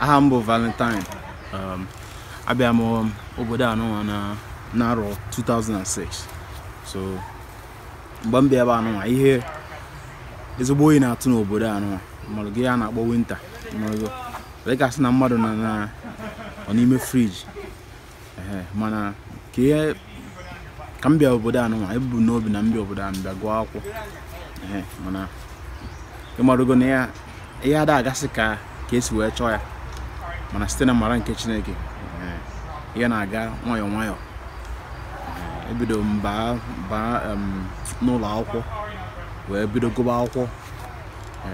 aha m bụ Valentine um, abịa m obodo anụnwa na n'arọ 2006 so mgbe m bịa ebe anụnwa ihe ezigbo oyi na-atụ n'obodo anụnwa mmadụ gị a na-akpọ winta dịka sị na mmadụ na na ọ n'ime friji mana ka ihe ka m bịa obodo anụnwa ebu n'obi na mbịa obodo anụ bịa gụọ akwụkwọ mana ịmarụgo na ihe ada agasị ka ka esi wee chọọ ya mana site na mara nke chineke ya na-aga nwayọọ nwayọọ ebido mbaa baa n'ụlọ akwụkwọ wee bido gụba akwụkwọ e,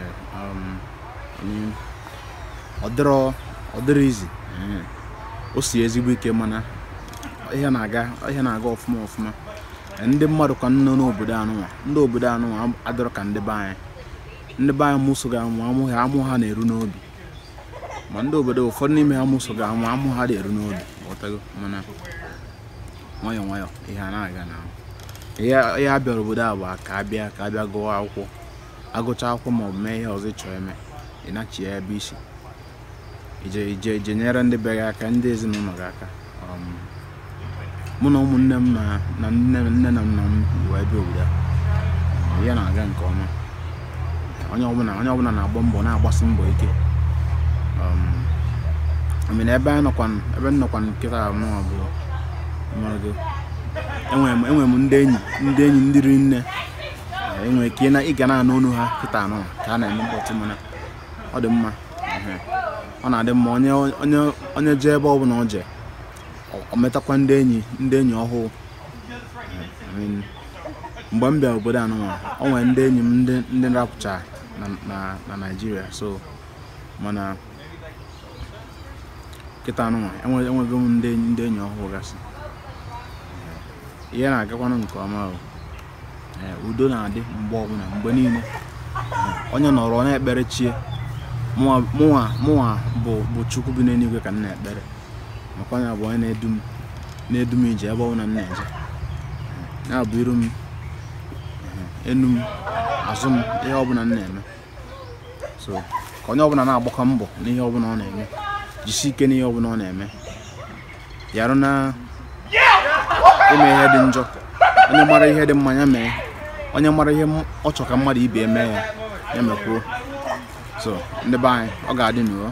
ọ dịrọ izi o si ezigbo ike mana ihe na-aga ihe na-aga ọfụma ọfụma e, ndị mmadụ ka nọ n'obodo anụnwa ndị obodo anụnwa adịrọ ka ndị be ndị be anyị mụso ga amụ amụ ha na-eru n'obi ma ndị obodo ụfọdụ n'ime ha mụso ga amụ amụ ha dị eru n'obi ghọtago mana nwayọ nwayọ ihe a na-aga na ihe a bịara obodo a bụ ka abịa ka bịa gụọ akwụkwọ agụcha akwụkwọ ma ọ bụ mee ihe ọzọ ịchọọ eme ịnachi ya ebe isi ije ije ije nyere ndị be gị aka ndị ezinụlọ gị aka mụ um, na ụmụnne m na nne na nna m wee bịa obodo a ya na-aga nke ọma onye ọbụla na-agba mbọ na-agbasi mbọ ike Um, mena ebe ebe nnọkwa nkịta mụnwa bụ enwere m ndị enyi ndị enyi ndị ri nne enwere ike ịga na-anụ ọnụ ha kịta anụ ka a na-eme mkpọtụ mana ọ dị mma ọ na-adị mma onye onye onye jee ebe ọ bụla ọ jee ọ metakwa ndị enyi ndị enyi ọhụụ mgbe m bịara obodo anụnwa o nwere ndị enyi m ndị rapụcha na naijiria so mana kịta nwa enweghị m ndị enyi ọhụrụ gasị ihe na-agakwanụ nke ọma eh, udo na-adị mgbe ọbụla mgbe niile eh, onye nọrọ na-ekpere chie mụnwa bụ chukwu bi n'eluigwe ka m na-ekpere maka onye bụ onye na-edu m na-edu m ije ebe ọbụla m na-eje ya bụ iru m enu m azụ m ihe ọbụla m na-eme so ka onye ọbụla na-agbakọ mbọ n'ihe ọbụla ọ na-eme jisi ike n'ihe ọbụla ọ na-eme yarụ na ime ihe dị njọ onye mara ihe dị mma ya mee onye mara ihe ọ chọ ka mmadụ ibe eme ya ya mekwuo so ndị be anyị ọ ga-adị n'uo